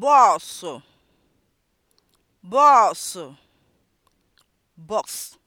bọọsụ bọọsụ bọks